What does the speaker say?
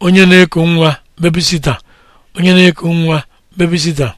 onye na-eku nwa bebisita onye na-eku nwa bebisita